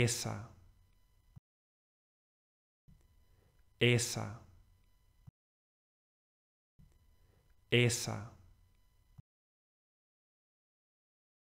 esa, esa, esa.